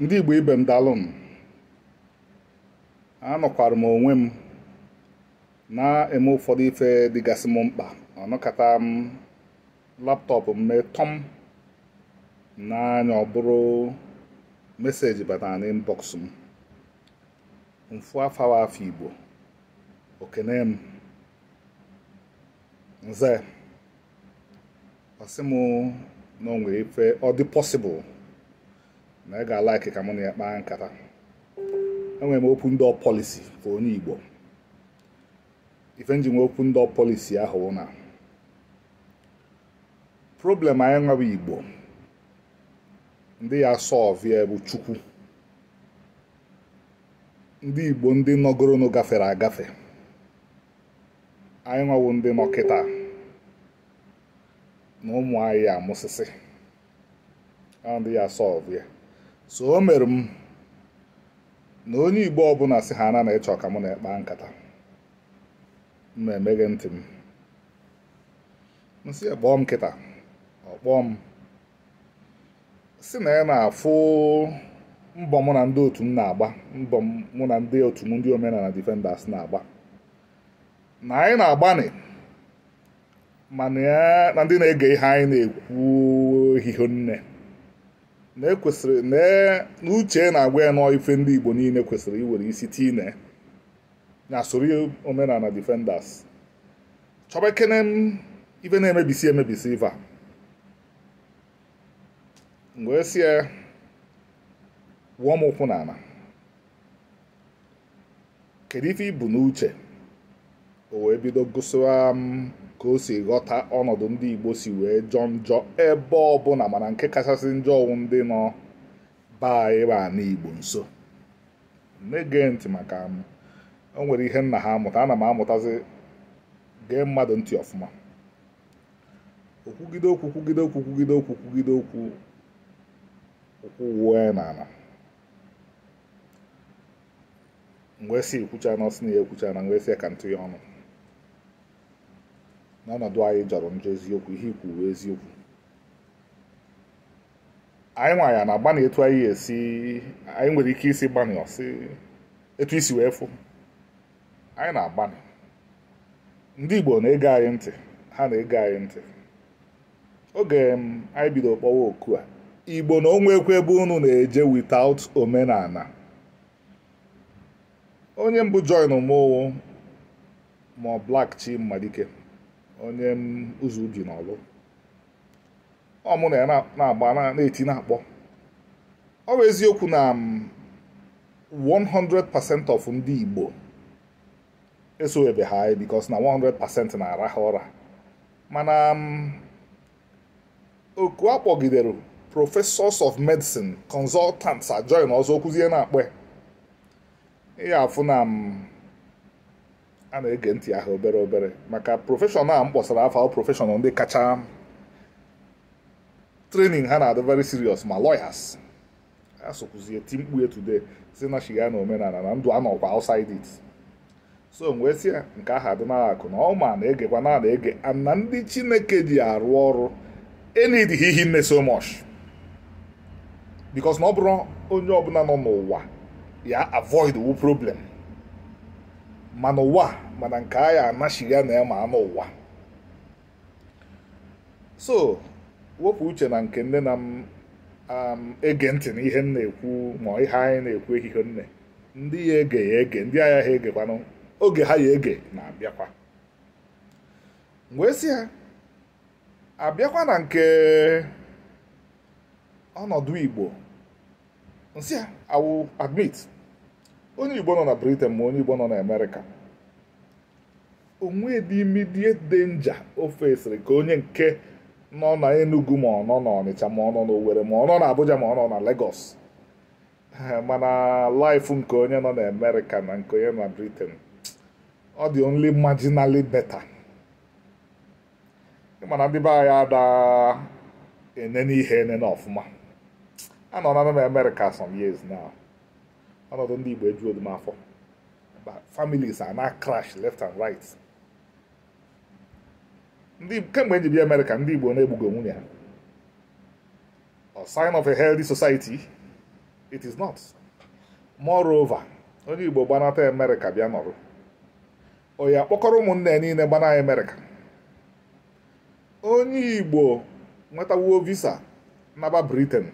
ndị igbo ibe m daalụ anọkwara m onwe m na-eme ụfọdụ ife dịgasị m mkpa ọnọkọta m laptọpụ m na n'anya ọ bụrụ meseji batara na m mfu afọ afọ igbo okene m nze ọ sị m na o nwere ife ọ dị pọsịbụl na ị ga-alaiki ka mụ na ekpe kpaa nkata enwere m open door policy ka onye Igbo ife nji m open door policy ahụ na problem anyị nwawa Igbo ndị ya solve ya bụ Chukwu ndị Igbo ndị nọgoronụ gafere agafe anyị nwawo ndị nọ na ụmụ anyị amụsịsị ndị ya solve ya so o mere m na onye igbo ọbụla si ha na na ịchọ ka m na ekpa nkata mma ntị m nsị kpọọ m kịta ọkpọọ m si na ya na-afụ mbọ mụ na ndị otu m na-agba mbọ mụ na ndị otu m ndị omenala defenders na-agba na anyị na agba mana ya na ndị na-ege ihe anyị na-ekwu ehihie nne na ekwesịrị na e, n'uche na-agwa ya nọọ ife ndị Igbo niile kwesịrị iwere isi tii na soro omenala defenders chọba m ife na-emebisi emebisi ife a e sie ya wụọ m ụkwụ n'ala kedu ife ibu n'uche o wee bido gụsịwa m ka o si ghọta ọnọdụ ndị Igbo si wee jọọ njọ ebe ọbụla mana nke kachasị njọ ọwụ ndị nọ baa ịba Igbo nso na ntị maka m o nwere ihe nna ha amụta ana m amụtazi gee mmadụ ntị ọfụma okwugide okwu kwugide okwu kwugide okwu kwugide okwu okwu wuo ya n'ala mgbe e si ekwucha na ọsị na ya ekwucha na mgbe e si ya ka ntụ ya ọnụ n'ọnọdụ anyị jọrọ njọ eziokwu ihe ikwu eziokwu anyị nwa ya na agbanị etu anyị esi anyị nwere ike isi gbanị ọsị etu isi wee fụ anyị na-agbanị ndị Igbo na-ege anyị ntị ha na-ege anyị ntị oge anyị bido kpọwa oku a Igbo na onwe ekwe ebe unu na-eje witaut omenala onye mbụ join mụ ma ọ chi mmalike. onye ụzọ ubi na ọlụ ọ mụ na ya na-agba na-eti na-akpọ ọ bụ eziokwu na 100% um, of ndị Igbo esowebe ha anyị e, bikos na 100% na-ara ha ụra mana um, oku akpọgidere professors of medicine consultants ajoin ọzọ okwuzie na-akpọ ya afụ na um, a na-ege ntị ahụ obere obere maka profeshọnal a m kpọsara afọ prọfeshọnal ndị kacha trening ha na-adị very serious ma lawyers ya ti mkpu etude today si na shiga na omenala na ndụ a nọkwa outside it so wee si ya nke ahụ adịnala akụ na ọma na-egekwa na na-ege na ndị chineke ji arụ ọrụ enidghị ihe nne so much because na ọ bụrụ onye ọbụla nọ n'ụwa ya avoid wu problem mana ụwa mana nke agha anachiri ya na ya ma anụ ụwa so wepụ uche na nke nne na m um, ege ntị na ihe m na-ekwu ma ihe anyị na-ekwu ehihie nne ndị ya ege ya ege ndị agha ha egekwanụ oge ha ya ege na-abịakwa wee si ha abịakwa na nke ọnọdụ Igbo nsị ha awụ admit onye Igbo nọ na Britain ma onye Igbo nọ na Amerịka onwe dị immediate danger ofe esiri ka onye nke nọ na Enugu ma ọ na Ọnịcha ma ọ nọ na Owerri ma ọ na Abuja ma ọ nọ na Lagos mana laif nke onye nọ na Amerịka na nke onye na Britain ọ dị only marginally better mana ndị be anyị ada enene ihe enene ọfụma anọ na m Amerịka some years now ọnọdụ ndị Igbo ejuodu m afọ families are na left and right ndị kemgbe nji bịa Amerịka ndị Igbo na-egbugo nwunye ha a sign of a healthy society it is not moreover onye Igbo gbanata Amerịka bịa nọrụ onye akpọkọrọ ụmụnne ya niile gbana Amerịka onye Igbo nwetawuo visa naba Britain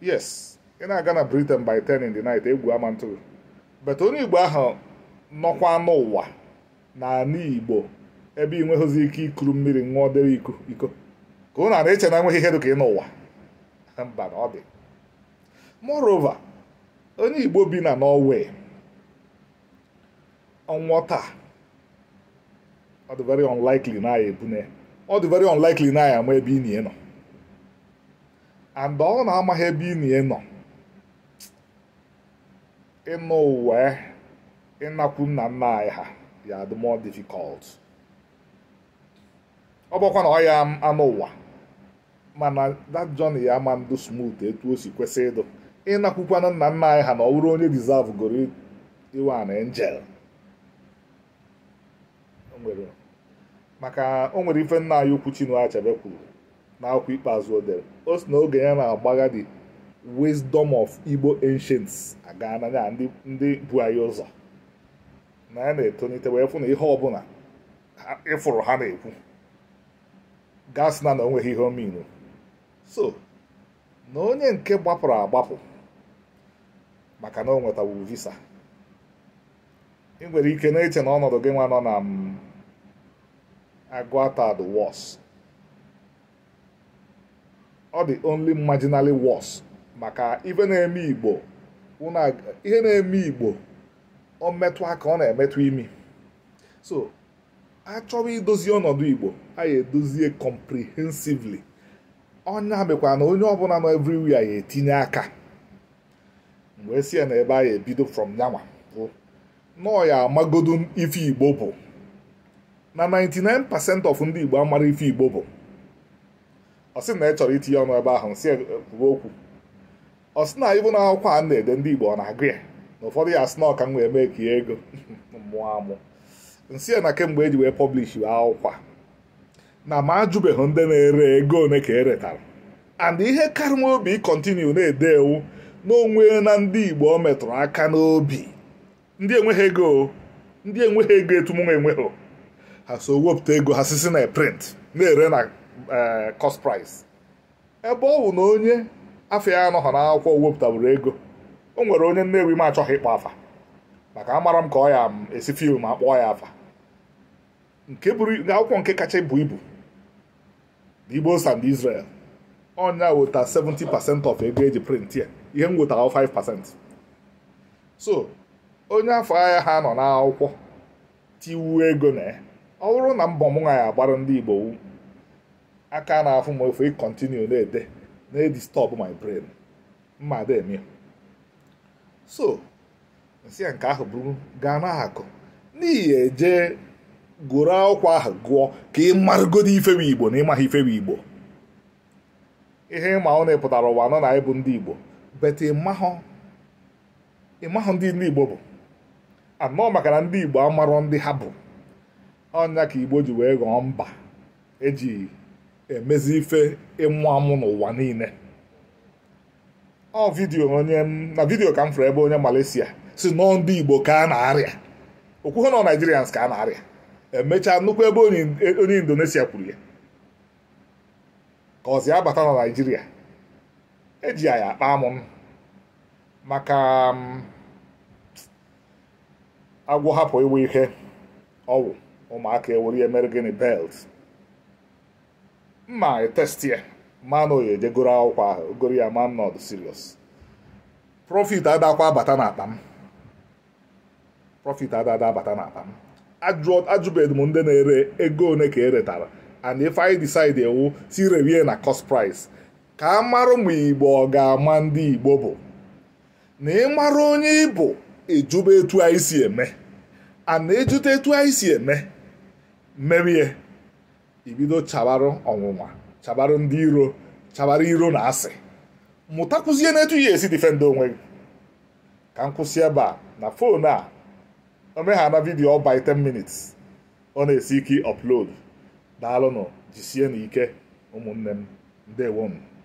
yes ị na-aga na Britain by 10 in the night egwu ama ntụrụ bet onye Igbo ahụ nọkwa n'ụwa na ala Igbo ebe ị nweghịzi ike ikuru mmiri ṅụọ dere iko iko ka ụnụ ara iche na enweghị ihe dị ka ị n'ụwa mba na ọ dị moreover onye Igbo bi na Norway ọnwụọ taa ọ dị very unlikely na ya ebune ọ dị very unlikely na ya ama ebe ị na-enọ and ọ na-amaghị ebe ị na-enọ ịnụ uwe ịnakwu nna nna anyị ha ya dị more difficult ọ bụkwa na ọ ya anụ ụwa mana that journey ya ama ndụ smooth etu o si kwesị ịdụ ịnakwukwana nna nna anyị ha na ọ bụrụ onye deserve goro iwe an angel maka o nwere ife nna anyị ukwu Chinua Achebe kwuru akwụkwọ ikpeazụ o dere o si na oge ya na-agbagha dị wisdom of igbo ancients aga na ya ndị bu anyị ụzọ na ya na-etonite wee fụ na ihe ọbụla ịfụrụ ha na-ekwu gasị na na onweghị ihe omeiwu so na onye nke gbapụrụ agbapụ maka na o nwetawu visa ị nwere ike na-eche na ọnọdụ gị nwa nọ na mm, agụata the wọs ọ dị only marginally worse maka ihe na-eme igbo ọ metụ aka ọ na-emetụ imi so a chọrọ idozi ọnọdụ igbo a ya edozie comprehensively ọnya mekwa na onye ọbụla nọ everywhere ya etinye aka mgbe si ya na ebe a ya ebido from yanwa nọọ ya amagodu ife igbo bụ na 99% of ndị igbo amara ife igbo bụ ọ sị na ị chọrọ itinye ọnụ ebe ahụ si okwu ọ sị na ịbụ na akwụkwọ a na-ede ndị Igbo ọ na-agụ ya na ụfọdụ ya asị na ọka m mee ka ego mụọ amụ nsị ya na kemgbe eji wee pọblishi akwụkwọ na ma ajụbeghị ndị na-ere ego one ka eretara and ihe karịa obi kọntinu na-ede ewu n'onwe na ndị Igbo ọ metụrụ aka n'obi ndị enweghị ego ndị enweghị ego etumunwa enweghị ha so wepụta ego ha sisi na print na-ere na eh, cost price ebe ọ bụ na onye afọ ya anọghọ n'akwụkwọ wepụtabụrụ ego o nwere onye Nnewi m achọghị ịkpọ afa maka amara m ka ọ ya esi fim ma kpọọ ya afa nke akwụkwọ nke kacha ibu ibu the Igbo and Israel ọnya weta 70% of ego eji print ya ihe m wetara 5% so onye afọ ahịa ha nọ n'akwụkwọ tiwu ego na ya ọ bụrụ na mbọ mụ nwa ya agbara ndị Igbo aka na-afụ m ofe ịkọntinu na-ede na disturb my brain mma ada so nsị ya nke ahụ bụrụ gaa n'akụ n'ihi eje gụrụ akwụkwọ ahụ gụọ ka ị marụgodo ifewe igbo na ịmaghị ifewe igbo ihe ịma ọ na-epụtara ụwa nọ na ịbụ ndị igbo bete ịmahụ ndị ndị igbo bụ anọ maka na ndị igbo amarọ ndị ha bụ ọnya ka igbo ji wee ghọọ mba eji emezi ife ịmụ amụ n'ụwa niile ọ vidio onye na vidio ka m fụrụ ebe onye Malaysia si nọọ ndị Igbo ka a na-arịa okwuhe nọ Naijirians ka a na-arịa emechaa nnukwu ebe e, onye Indonesia kwuru ya ka ọzi abata na Naijiria eji ya akpa amụ maka agwọ hapụ iwe ihe ọwụ ụmụaka ewere ya mere gịnị belt mma e testi ya eh. ma na ejegoro eh, akwụkwọ ahụ goro ya ma m nọdụ serious profit adakwa bata n'akpa m profit adada abata n'akpa m ajụbeghị m ndị na-ere ego one ka eretara and if I decide ewu oh, si rewie na cost price ka e a marụ ma igbo ọ ga-ama ndị igbo bụ na ị mara onye ịbụ ejube etu anyị si eme and na-ejute etu anyị si eme merie ibido chabarụ ọnwụnwa chabarụ ndị iro chabara iro na asị mụtakwuzie n'etu ya esi difendị onwe gị ka m kwụsị ebe a na fon a omeghana vidiyo ọ by 10 minutes ọ na-esi ike upload daalụnụ jisie na ike ụmụnne m ndewo m